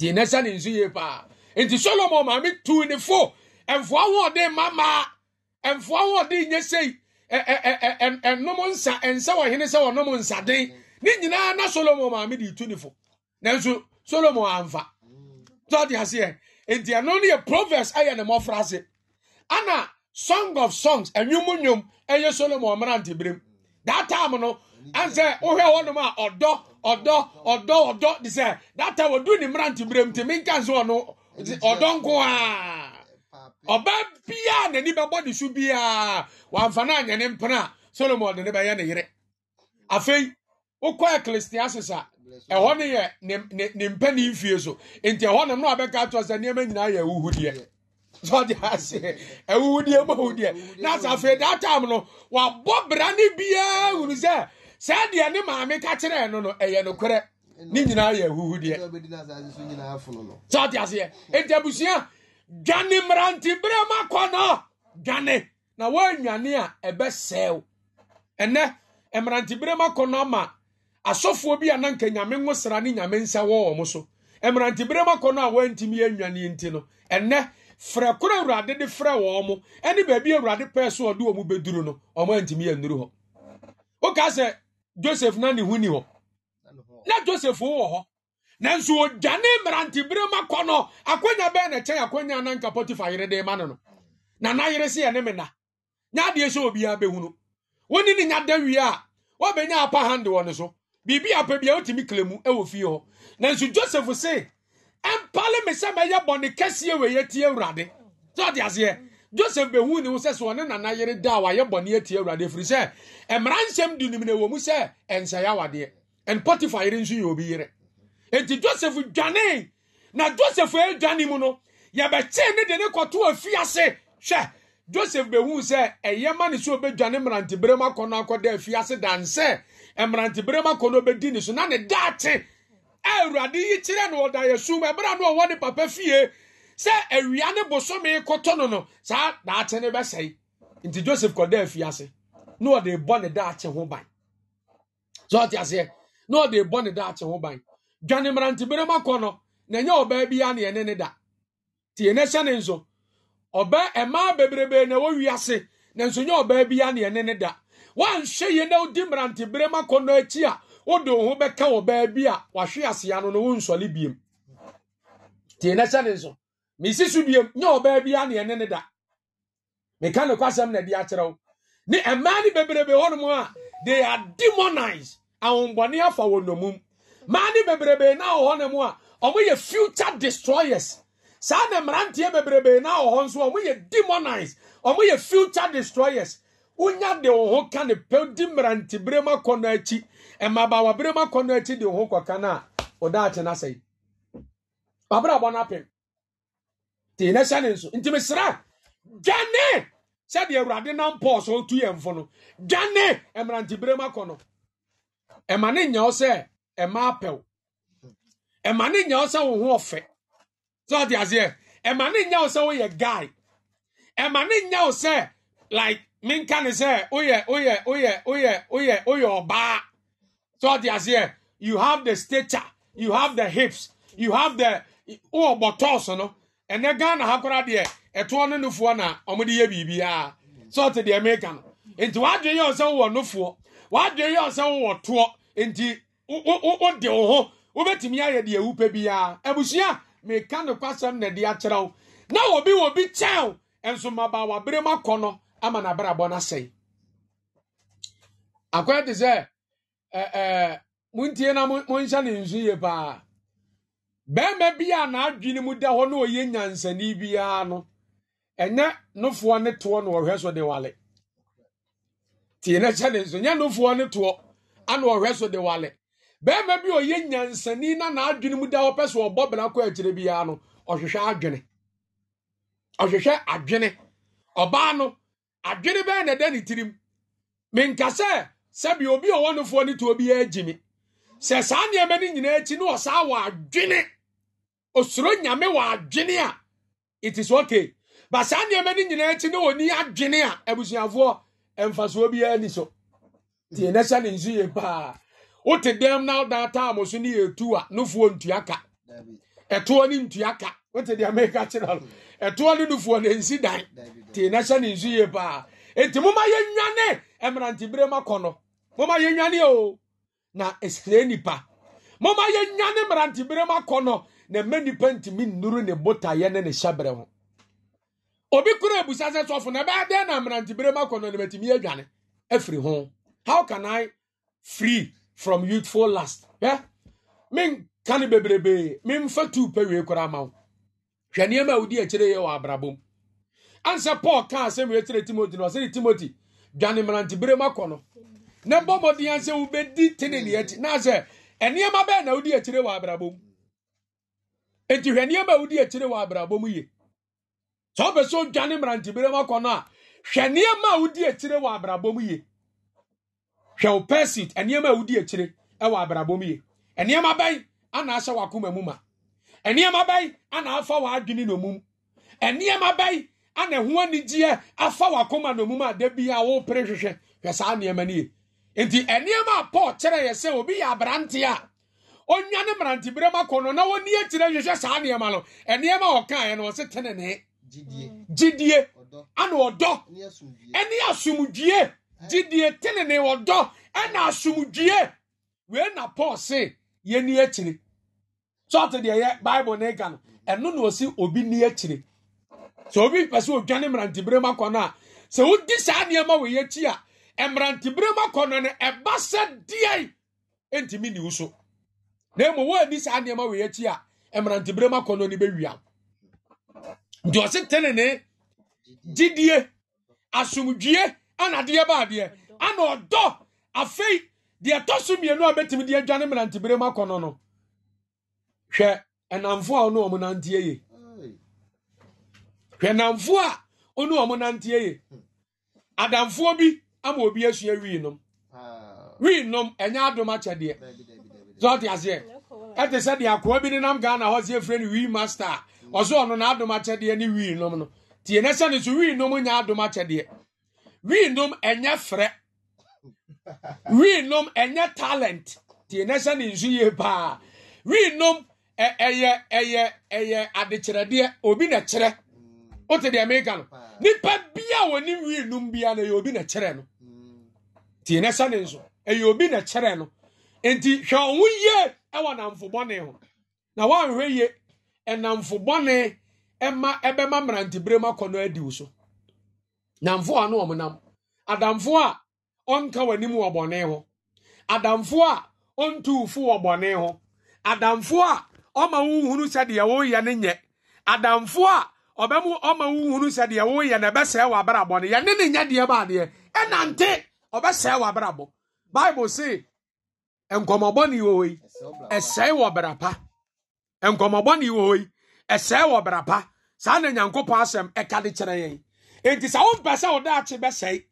deɛ n'ɛhyɛ ne nso yie paa nti solomon maame tuu ne fo mfoa ahoɔden mamaa mfoa ahoɔden nyɛ sei ɛnom e, e, e, nsa nsa wɔ hene sɛ wɔnom nsaden ne nyinaa na solomon maame de tu ne fo nanso solomon amfa tɔde aseɛ nti ɛno no yɛ proverbs ɛyɛ ne mmɔfra ase ana song of songs ɛnwom nwom ɛyɛ solomon mmerante berem daa taam no ansɛ wohwɛ hɔnom a ɔdɔ Ọdọ Ọdọ ọdọ de sɛ data wɔdu ne mmerante berɛ nti menka nso ọnụ. Ọdọ nko a ɔbaa biaa n'ani bɛbɔ de so biaa wɔamfa no na ne mpena a solomon de ne bɛyɛ ne yere afei wokɔ ecclesiastes a ɛhɔ no yɛ ne mpɛ ne so nti ɛhɔ nom na wabɛka to sɛ nneɛma nyinaa yɛ awuhudeɛ sɛ ɔde ase awuhudeɛ ma wudeɛ na sɛ afei daa no wabɔ bra sɛ saa deɛ ne maame ka kyerɛɛ no no ɛyɛ nokorɛ ne nyinaa yɛ ahuhu deɛ sɛ aseɛ enti abusua dwane mmeranteberɛ ma no dwane na woanwane a ɛbɛsɛe wo ɛnɛ mmeranteberɛ ma kɔ no ama asɔfoɔ bi a na nka nyame sra ne nyame nsa wɔ wɔ mo so ma kɔ no a woantumi nti no ɛnɛ frɛ koro awurade de frɛ mo baabi awurade pɛɛ so ɔde wɔ mu bɛduru no ɔmo antumi hɔ josef na ne ho ni hɔ na josef wowɔ hɔ nanso ɔdwane mmerantebere ma kɔ no akwanya bɛɛ na kyɛn akwanya na nka potifa yere de ma no no na nayere se yɛ ne mena nya adeɛ sɛ obiara bɛhunu woni ne nya da wie a wɔbɛnya apa hande wɔ ne so biribi apɛ bia wotumi kle mu wɔ fie hɔ nanso josef se ɛmpale me sɛ mɛyɛ bɔne kɛseɛ wɔ yɛtie awurade sɛ ɔde aseɛ joseph behu ne ho sɛ sɛ ɔne nana yere da a wayɛ bɔne atie awurade ɛfiri sɛ mmara nsɛm di nim ne wɔ mu sɛ ɛnsɛe awadeɛ ɛn potifa yere nso yɛ obi yere enti joseph dwane na joseph adwane mu no yɛbɛkyee ne de ne kɔto afiase hwɛ joseph behu sɛ ɛyɛ ma ne sɛ obɛdwane mmeranteberɛ mu akɔ no akɔda afiase dansɛ mmeranteberɛ mu akɔ no ne so na ne daate awurade yi kyerɛ no ɔda yɛ sum ɛberɛ no ɔwɔ ne papa fie sɛ awia ne bosome kotɔ no no saa daakye ne bɛsɛe nti joseph kɔda afiase na ɔde bɔ ne daakye ho ban sɛ aseɛ na ɔde bɔ ne daakye ho ban dwane mmerantebere mu akɔ no na ɛnyɛ ɔbaa biara ne ɛne ne da nti yɛn ahyɛ ne nso ɔbaa mmaa bebrebe na ɛwɔ na nso nyɛ ɔbaa biara ne ɛne ne da wɔanhwɛ yie na ɔdi mmerantebere mu akɔ no akyi a wode wo ho bɛka ɔbaa bi a wahwe asea no na wɔnsɔle biem nti yɛn ahyɛ ne nso mesi so biam nyɛ ɔbaa bi aneɛ ne ne da meka ne kwasɛm na de akyerɛ wo ne mmaa ne bebrebe hɔnom a they are demonized ahombɔne afa wɔ nomum mmaa ne bebrebe na wɔ hɔnom a ɔmoyɛ future destroyers saa na mmeranteɛ bebrebe na wɔ hɔ nso ɔmoyɛ demonized ɔmoyɛ future destroyers wonya de wo ho ka ne pɛw di mmerantebere mu akɔ no akyi mmabawabere mu akɔ no akyi de wo ho kɔka no a ɔdaakye no asɛe wabrabɔ no apem tee na hyɛ ne nso nti mesra dwane sɛdeɛ awurade nam paul so tu yɛn fo no dwane mmerantebere mu akɔ no ɛma ne nya wo sɛ ɛma apɛw ɛma ne nya wo sɛ wo ho ɔfɛ sɛ ɔte aseɛ ɛma ne nya wo sɛ woyɛ guy ɛma ne nya wo sɛ like menka ne sɛ woyɛ woyɛ woyɛ woyɛ woyɛ woyɛ ɔbaa sɛ ɔte aseɛ you have the stature you have the hips you have the wowɔ bɔtɔɔso no ɛnɛ ghana ha kora deɛ ɛtoɔ no nofoɔ na ɔmode yɛ biribiaa sɛ ɔte deɛ meka no nti wadwen yɛ sɛ wowɔ nofoɔ wadwen yɛ sɛ wowɔ toɔ nti wode wo ho wobɛtumi ayɛ deɛ wopɛ biara abusua meka no kwasɛm na de akyerɛ wo na wɔbi wɔbi kyɛn nso maba wabere mu akɔ no ama nabrabɔ no asɛe akɔyɛ te sɛ montie na monhyɛ ne nsu yie paa bɛrima bi a n'adwene mu da hɔ na ɔyɛ nyansani biara no ɛnyɛ nofoɔ ne toɔ na ɔhwɛ so de wale tie ne nso nyɛ nofoɔ ne toɔ ana ɔhwɛ so de wale bɛrima bi a ɔyɛ nyansani na n'adwene mu da hɔ pɛ so ɔbɔ bena kɔ akyire biara no ɔhwehwɛ adwene ɔhwehwɛ adwene ɔbaa no adwene bɛyɛ na ɛda ne tirim menkasɛ sɛbi obi a ɔwɔ nofoɔ ne toɔ saa nneɛma no na ɔsaa osoro nyame wɔ adwene a it is okay ba saa nneɛma no nyinaa akyi ne wɔni adwene a abusuafoɔ mfasoɔ biara ni so tie na hyɛ ne nsu yie paa wote dɛm na woda taamo so ne yɛtu a nofoɔ ntua ka ɛtoɔ ne ntua ka wote deɛ meka kyerɛ no ɛtoɔ ne nofoɔ ne nsi dan tie na ne nsu yie paa enti moma yɛnwane mmerantebere ma kɔ no moma yɛnwane o na ɛsrɛ nipa moma yɛnwane mmerantebere ma kɔ no na mma nipa ntumi nnuru ne botaeɛ ne ne hyɛbrɛ ho obi kura ebusa sɛ sɔfo na ɛbɛyɛ dɛn na mmerantebere mu akɔnɔ ne batumi adwane afiri ho how can i free from youthful lust hwɛ menka ne bebrebee memfa tuu pɛ wie koraa ma wo hwɛ nneɛma a wodi akyire yɛ wɔ abrabɔ mu ansɛ paul kaa asɛm wei kyerɛ timoti no ɔsɛ ne timoti dwane mmerantebere mu akɔ no na bɔ mmɔden ansɛ wobɛdi teneneɛ akyi na sɛ ɛnneɛma bɛɛ na wodi akyire wɔ abrabɔ mu Eti hwɛ nneɛma a wodi akyire wɔ abrabɔ mu yie sɛ ɔpɛ sɛ ɔdwane mmerantebere mu akɔ no a hwɛ nneɛma a wodi akyire wɔ abrabɔ mu yie hwɛ wo persit nneɛma a wodi akyire wɔ abrabɔ mu yie nneɛma bɛn ana ahyɛ wakoma mu ma nneɛma bɛn ana afa w'adwene na omum nneɛma bɛn ana ho anigyeɛ afa wakoma na omum a da bi a wɔpere hwehwɛ hwɛ saa nneɛma no yie nti nneɛma a paul kyerɛ yɛ sɛ obi yɛ aberanteɛ a onwa ne mmeranteberɛ ma kɔ no na wɔni akyirɛ hwehwɛ saa nneɛma no nneɛma ɔkaeɛ no ɔse tenenee gyidie ana ɔdɔ ɛne asomdwie gyidie tenenee ɔdɔ ɛna asomdwie wei na paul se yɛni akyiri sɔɔte deɛ yɛ bible ne ka no ɛno na ɔsi obi ni akyiri sɛ obi pɛ sɛ ɔdwane mmeranteberɛ ma kɔ no a sɛ wodi saa nneɛma wɔ yɛakyi a mmeranteberɛ ma kɔ no no ɛba sɛ deɛ ntumi ne wo so na mmom wɔadi saa nneɛma wei akyi a mmeranteberɛ mu akɔnnɔ no bɛwia nti ɔse tenene gyidie asomdwie ana adeɛ ba adeɛ ana ɔdɔ afei deɛ ɛtɔ so mmienu a bɛtumi de adwane mmeranteberɛ mu akɔnnɔ no hwɛ ɛnamfo a ɔne ɔmo nanteɛ ye hwɛ namfo a ɔne ɔmo nanteɛ ye adamfoɔ bi ama obi asua wii nom wii nom ɛnyɛ adom akyɛdeɛ sɛ ɔte aseɛ ɛte sɛ deɛ akoa bi ne nam ghana hɔ sɛ ɛfrɛ no wii master a ɔsɛ ɔno n'adom akyɛdeɛ ne wii nom no tie ne sɛ ne so wii nom nya adom akyɛdeɛ wii nom ɛnyɛ frɛ wii nom ɛnyɛ talent tie ne sɛ ne nso yie paa wii nom ɛyɛ ɛyɛ ɛyɛ adekyerɛdeɛ obi na kyerɛ wote hmm. deɛ meka no hmm. nipa bia wɔ ne wii nom bia no ɛyɛ obi na kyerɛ no tie ne sɛ ne nso ɛyɛ obi na kyerɛ no nti hwɛ ɔho yie ɛwɔ namfo bɔne ho na woanhwɛ yie ɛnamfo ɛma ɛbɛma mmerantebere mu akɔ no adi wo so namfo a no wɔn nam adamfo a ɔnka w'anim wɔ bɔne ho adamfo a ɔntu fo wɔ bɔne ho adamfo a ɔma wohunu sɛdeɛ woyɛ no nyɛ adamfo a ɔbɛmu ɔma wohunu sɛdeɛ woyɛ no ɛbɛsɛe wɔ abrabɔ no yɛne ne nyɛ deɛ baadeɛ ɛnante ɔbɛsɛe wɔ abrabɔ bible say nkɔmɔbɔ ne wɔ yi ɛsɛe wɔ brapa nkɔmɔbɔ ne wɔ yi ɛsɛe wɔ brapa saa na nyankopɔn asɛm ɛka de kyerɛ yɛn enti sɛ wompɛ sɛ wo daakye bɛsɛe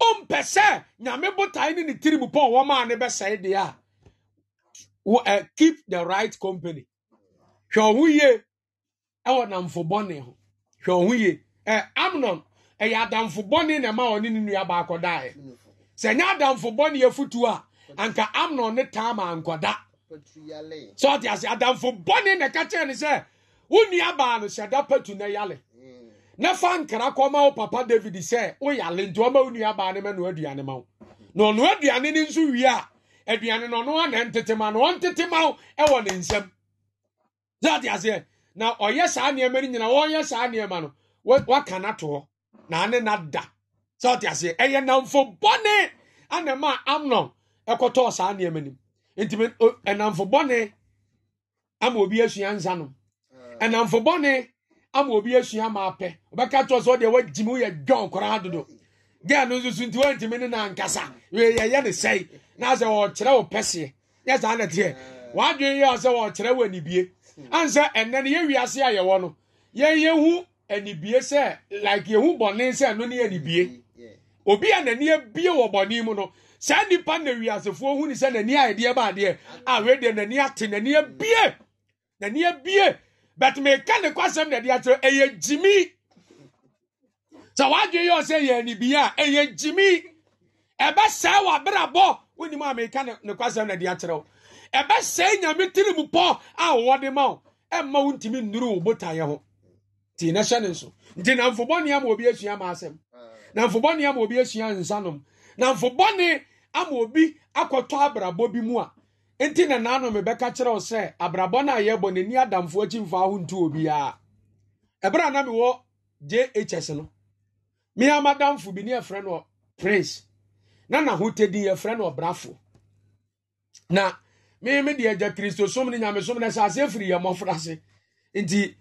wompɛ sɛ nyame botae ne ne tirim pɔ wɔ maa ne bɛsɛe deɛ a keep the right company hwɛ ɔho yie ɛwɔ namfo ho hwɛ ɔho yie ɛ amnon ɛyɛ adamfo bɔne na ɛma ɔne ne nua baakɔ daeɛ sɛ nyɛ adamfo bɔne a anka amnon ne tama ankɔda sɛ ɔde ase adamfo bɔne na ɛka kyerɛ ne sɛ wo nua baa no hyɛ patu na yale mm. na fa nkra kɔma wo papa david sɛ woyale nti ɔma wo nua baa no ma no aduane ma wo na ɔno aduane no nso wie a aduane no ɔno ana na ma no ɔntete ma wo ɛwɔ ne nsɛm sɛ ɔde aseɛ na ɔyɛ saa nneɛma no nyina wɔnyɛ saa nneɛma no waka no to na ane nada sɛ ɔde aseɛ ɛyɛ namfo bɔne ana amnon ɛkɔtɔɔ saa nneɛma nim nti ɛnamfo bɔne ama obi asua nsa no eh. ɛnamfo ama obi asua ma apɛ ɔbɛka kyerɛ sɛ ɔdeɛ wagyi mu yɛ dwɔn koraa dodo gɛɛ no nso so nti wantumi ne nankasa yɛyɛ ne sɛe na sɛ wɔkyerɛ wo pɛseɛ yɛ saa na teɛ eh. wadwene yɛ sɛ wɔkyerɛ wo anibie hmm. ansɛ ɛnɛ no yɛwiase a yɛwɔ no hu anibie sɛ like yɛhu bɔne sɛ ɛno ne yɛ anibie obi a n'ani abie wɔ bɔne mu no saa nnipa na wiasefoɔ hu ne sɛ n'ani a yɛdeɛ ba adeɛ a wedeɛ n'ani ate n'ani abie n'ani abie bɛt meka ne kwasɛm na ɛde akyerɛ ɛyɛ gyimi sɛ wadwe yɛ sɛ yɛ anibia a ɛyɛ gyimi ɛbɛsɛe w'abrabɔ wonim a meka ne kwasɛm na ɛde akyerɛ wo ɛbɛsɛe nyame tiri mu pɔ a wɔde ma wo ɛmma wo ntumi nnuru wo botaeɛ ho nti na hyɛ ne nso nti na mfobɔne ama obi asua ma asɛm na mfobɔne ama obi asua nsanom na mfobɔne ama obi akɔtɔ abrabɔ bi mu a nti na naano mebɛka kyerɛ wo sɛ abrabɔ no a yɛbɔ n'ani adamfoɔ akyi mfa ho ntu obiara ɛberɛ a na mewɔ jhs no mea madamfo bi ne yɛfrɛ no prince na n'ahotɛdin yɛfrɛ no ɔbrafo na me me deɛ agya kristosom no nyamesom no sɛ asɛ firi yɛ mmɔfra se nti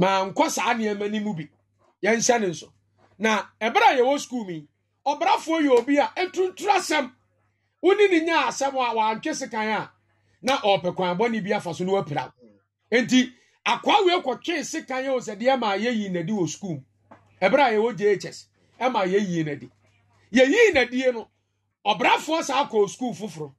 mankɔ saa nneɛma no mu bi yɛnhyɛ ne nso na ɛberɛ a yɛwɔ skuul mu yi ɔbrafoɔ yɛ obi a ɛtuntun asɛm woni ne nya asɛm a wantwe sekan a na ɔpɛ kwan bɔne bi afa so na wapira nti akoa wei kɔtwe sekan yɛ osɛdeɛ ma yɛyi nadi wɔ sukuu ɛberɛ a yɛwɔ jhs ɛma yɛyi nadi yɛyi nadie no ɔbrafoɔ saa kɔɔ sukuu foforɔ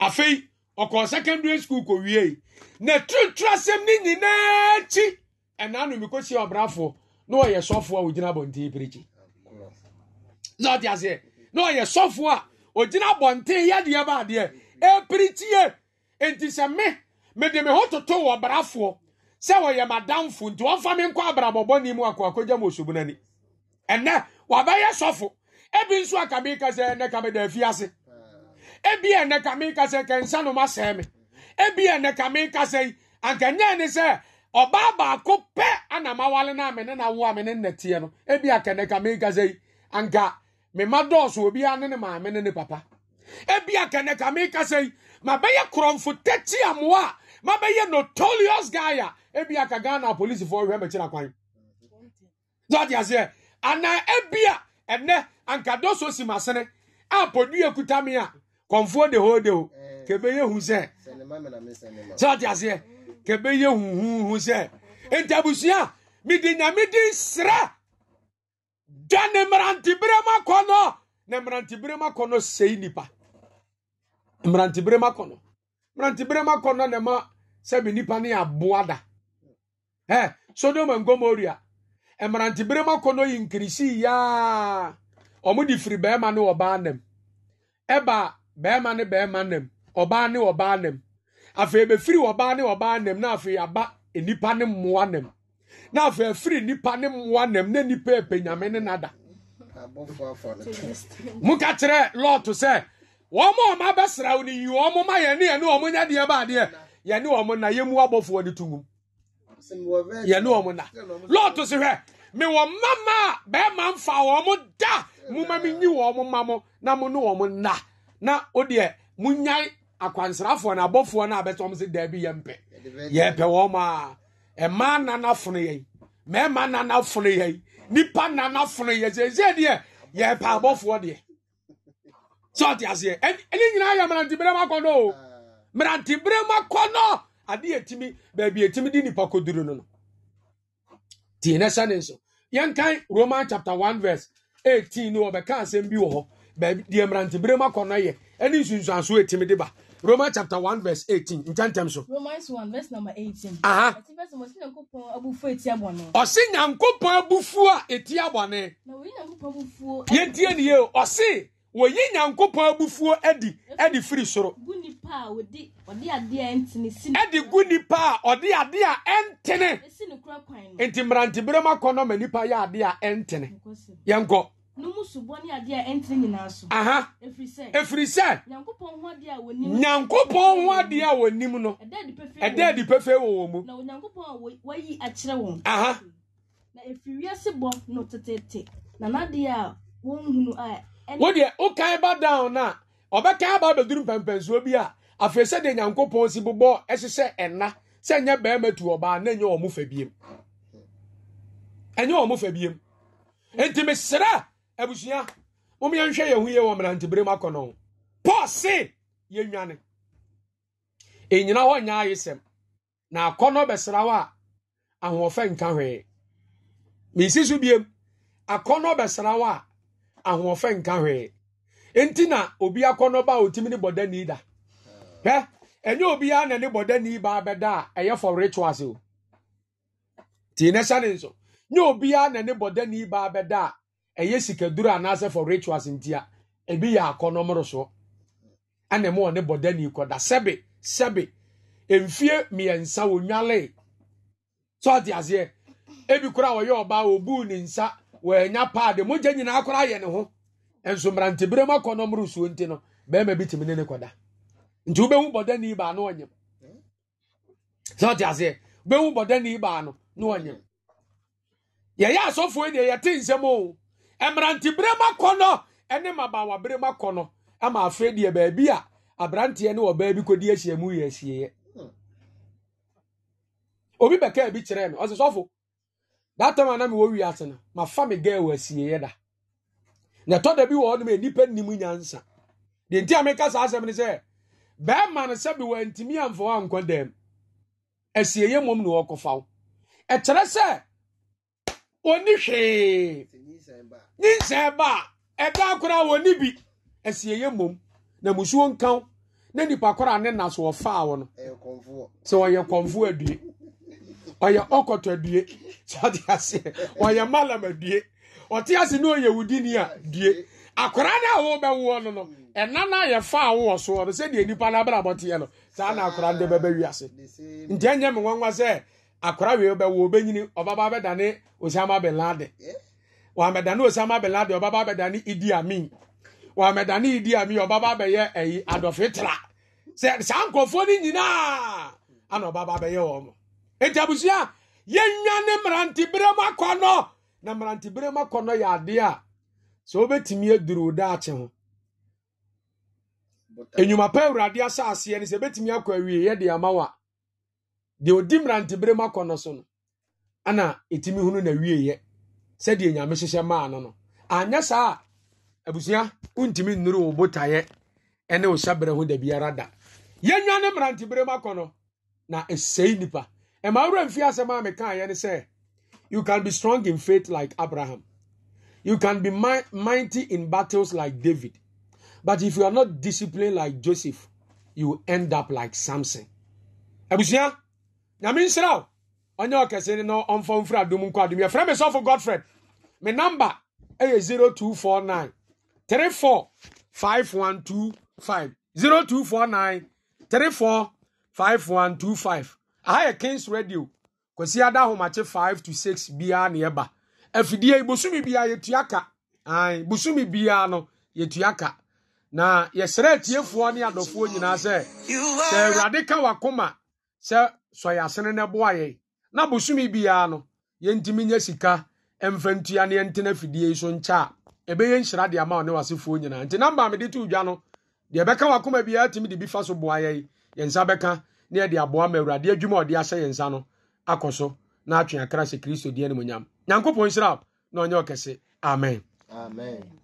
afei ɔkɔɔ secondary school kɔwiei na tuntun asɛm ne nyinaa akyi ɛnaa nomikɔsie ɔbrafoɔ na ɔyɛ sɔfoɔ a ɔgyina abɔnten pirikyi na ɔde aseɛ na ɔyɛ sɔfoɔ a ogyina abɔnten yadeɛ ba adeɛ epiri tie nti sɛ me mede me ho toto wɔ brafoɔ sɛ wɔyɛ madamfo nti wɔmfa me nkɔ abrabɔbɔni mu akɔ akɔgya mu osubu n'ani ɛnɛ wabɛyɛ sɔfo ebi nso a kame kasɛ ɛnɛ kame da afi ase ebi ɛnɛ kame kasɛ kɛnsa no ma sɛɛ ebi ɛnɛ kame kasɛ yi ankanyɛ ne sɛ ɔbaa baako pɛ ana ma wale na amene na awo amene nnɛteɛ no ebi akɛnɛ kame kasɛ yi anka mema dɔɔso obiara ne ne maame ne ne papa ebi akɛnɛka mi kasa yi ma bɛyɛ korɔnfo tɛti amoa a ma bɛyɛ notorious guy a ebi aka ghana polisifoɔ hwɛ mɛkyerɛ kwan dɔɔte aseɛ anaa ebi a ɛnɛ anka dɔɔso si ma sene a podua kuta mi a kɔnfoɔ de hoo de ho kebe eh. yɛ hu sɛ dɔɔte aseɛ kebe yɛ huhuhu sɛ ntabusua mi di nyame gya ne mmerantebere mu akɔnɔ na mmerantebere mu akɔnɔ sɛi nipa mmerantebere mu akɔnɔ mmerantebere mu akɔnɔ na ma sɛbi nipa ne aboa da ɛ sodom and gomoria mmerantebere mu akɔnɔ yi nkirisi yaa wɔn de firi bɛrima ne ɔbaa nam ɛba bɛrima ne bɛrima nam ɔbaa ne ɔbaa nam afei ebefiri ɔbaa ne ɔbaa nam na afei aba nipa ne mmoa nam. na afọ afiri nnipa ne mmoa nam na nnipa ɛpɛ e nyame ne nada moka kyerɛ lot sɛ wɔn a ɔma bɛsra wo no yi wɔn ma yɛne yɛne wɔn nya deɛ baadeɛ yɛne wɔn na yɛmu abɔfoɔ no to wum yɛne wɔn na lot so hwɛ mewɔ mama a bɛrima mfa wɔn da moma mi nyi wɔn ma mo na mụ ne wɔn na na o deɛ mo nyan akwansrafoɔ na abɔfoɔ no a bɛtɔm sɛ daabi yɛmpɛ yɛpɛ wɔn a mmaa nana funu yɛn mmarima nana funu yɛn nipa nana funu yɛn sɛ deɛ yɛ paabɔfoɔ deɛ sɛ ɔte aseɛ ɛne nyinaa yɛ mmeranteberɛ mu akɔnɔ o mmeranteberɛ mu kɔnɔ ade yɛtumi baabi yɛtumi nipa koduru no no tie ne sɛ ne nso roman chapter one verse eighteen no asɛm bi wɔ hɔ baabi deɛ yɛ Romans chapter one verse 18. Ntantam so. Romans one verse number eighteen. Aha. Ati verse mo sin yankopon abufu etia bone. Ose yankopon abufu a etia bone. Na wo yankopon abufu. Yentie ne ye. Ose wɔyi nyankopɔn abufuo adi adi firi soro. gu nipa a ɔde ɔde adeɛ ɛntene si. ɛde gu nipa a ɔde adeɛ a ɛntene. esi ne kura kwan no. nti mmeranteberem akɔnɔ ma nipa yɛ adeɛ a ɛntene. yɛn kɔ numu subɔ ni adeɛ ɛntiri nyinaa so. aha efiri sɛ. efiri sɛ. nyankopɔn ho adeɛ a wɔnim. nyankopɔn a wɔnim no. ɛdɛ di pɛfɛ wɔ wɔn mu. na onyankopɔn a wɔyi na efiri wiase bɔ no tetete na n'adeɛ a wɔn hunu a. wo o kan ba down na ɔbɛka aba abɛduru mpɛmpɛnsuo bi a afei sɛ nyankopɔn si bobɔ ɛhyehyɛ ɛna sɛ nyɛ bɛrima tu ɔbaa na nyɛ wɔn fɛ biem ɛnyɛ wɔn fɛ biem nti mesrɛ. abusua mom yɛnhwɛ yɛn ho yie wɔ mmeranteberem akɔnɔ paul se yɛnwane Enyina hɔ nyɛ ayesɛm na akɔnɔ bɛsra wo a ahoɔfɛ nka hwee mesi so biem akɔnɔ bɛsra wo a ahoɔfɛ nka hwee nti na obi akɔnɔ ba a otimi ne bɔda ni da hɛ ɛnyɛ obiara na ne bɔda ni ba bɛda a ɛyɛ for rituals o Tii ne hyɛ ne nso nyɛ obiara na ne bɔda ni ba bɛda a ɛyɛ sikaduru anaasɛ for rituals nti a ebi yɛ akɔnɔmoro soɔ ɛna mu wɔ ne bɔdani kɔda sɛbi sɛbi mfie mmiɛnsa wɔnwale sɔɔte aseɛ ebi kora a wɔyɛ ɔbaa obu ne nsa wɔanya paade mogya nyinaa kora ayɛ ne ho nso mmerantebere mu akɔnɔmoro suo nti no bɛrima bi tìmi ne ne kɔda nti wobɛhu bɔdani baa no ɔnyam sɔɔte aseɛ wobɛhu bɔdani baa no no ɔnyam yɛyɛ asɔfoɔ deɛ yɛte nsɛm o. mmeranteberɛ mu akɔ no ne mmabaawaberɛ mu akɔ no ama afei deɛ baabi a aberanteɛ ne ɔbaa bi kɔdi ahyia mu yɛ ahyieɛ hmm. obi bɛkaa bi kyerɛɛ me ɔsɛ sɔfo that time na mewɔ wiase no fa me gaa wɔ ahyieɛ da na ɛtɔ da bi wɔ hɔnom nnipa nnim nyansa deɛ nti a meka saa asɛm ne sɛ bɛrima no sɛbe wantumi amfa wɔ ankɔ dam ahyieɛ mmom ne wɔkɔfa wo ɛkyerɛ sɛ ɔni hwee ne nsɛn ba a ɛda akora wɔ ne bi ɛsi ɛyɛ mmom na musuo nkan na nipa kora ne na so ɔfaa wɔ no sɛ ɔyɛ kɔnfo adue ɔyɛ ɔkɔtɔ adue sɛ ɔte aseɛ ɔyɛ malam adue ɔte ase na ɔyɛ wudini a due akora no a wɔbɛwoɔ no no ɛna no ayɛ faa wowɔ soɔ no sɛdeɛ nipa no abrabɔteɛ no saa na akora no de bɛbɛ wiase nti ɛnyɛ me nwanwa sɛ akora wei bɛwo obɛnyini ɔbaba bɛdane osiama bin laden wɔamɛdane osama bin laden ɔbaba abɛdane idi amin wɔamɛdane idi amin ɔbaba abɛyɛ ɛyi adɔfe sɛ saa nkurɔfoɔ ni nyinaa ana ɔbaba abɛyɛ wɔn mo eti abusua yɛnwa ne mmeranteberɛ mu akɔnɔ na mmeranteberɛ mu akɔnɔ yɛ adeɛ a sɛ wobɛtumi aduru daakye ho enyuma pa awurade asɛ aseɛ no sɛ ebɛtumi akɔ awie yɛ de ama wa deɛ odi mmeranteberɛ mu akɔnɔ so no ana etimi hunu na wie yɛ. sɛdeɛ nyame hyehyɛ maa no no anyɛ saa a abusua wontumi nnuru wo botaeɛ ne wo hyɛberɛ ho da biara da yɛnwa ne mmeranteberɛ mu no na ɛsɛi nnipa ɛma wura mfi asɛm a mekaeɛ ne sɛ you can be strong in faith like abraham you can be mighty in battles like david but if you are not disciplined like joseph you end up like samson abusua nyame nhyira wo ɔnyɛ ɔkɛse na ɔmfa mfiri adom nkɔ adom yɛfrɛ me sɔfo godfred me number ɛyɛ 0249 345125 0249 345125 aha yɛ kings radio kwasi ada ahomakye 5 to 6 biara ne ɛba afidie bosome biara yɛtua ka an bosumi biara no yɛtua ka na yɛsrɛ atiefoɔ ne adɔfoɔ nyinaa sɛ sɛ awurade ka wakoma sɛ sɔyɛ asene boa yɛn na bosome biara no yɛntumi nya sika mfa ntua ne yɛntena fidie yi so nkyɛ a ɛbɛyɛ nhyira de ama ɔne wasefoɔ nyinaa nti namba a mede to dwa no deɛ ɛbɛka wakoma biara tumi de bi fa so boa yɛi yɛn nsa bɛka na yɛde aboa ma awurade adwuma ɔde ahyɛ yɛn nsa no akɔ so na atwe akra sɛ kristo deɛ no mu nyam nyankopɔn nhyira na ɔnyɛ ɔkɛse amen amen